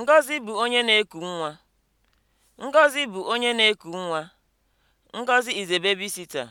Ngọzi bụ onye na-eku nwa. Ngọzi bụ onye